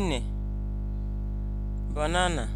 une banana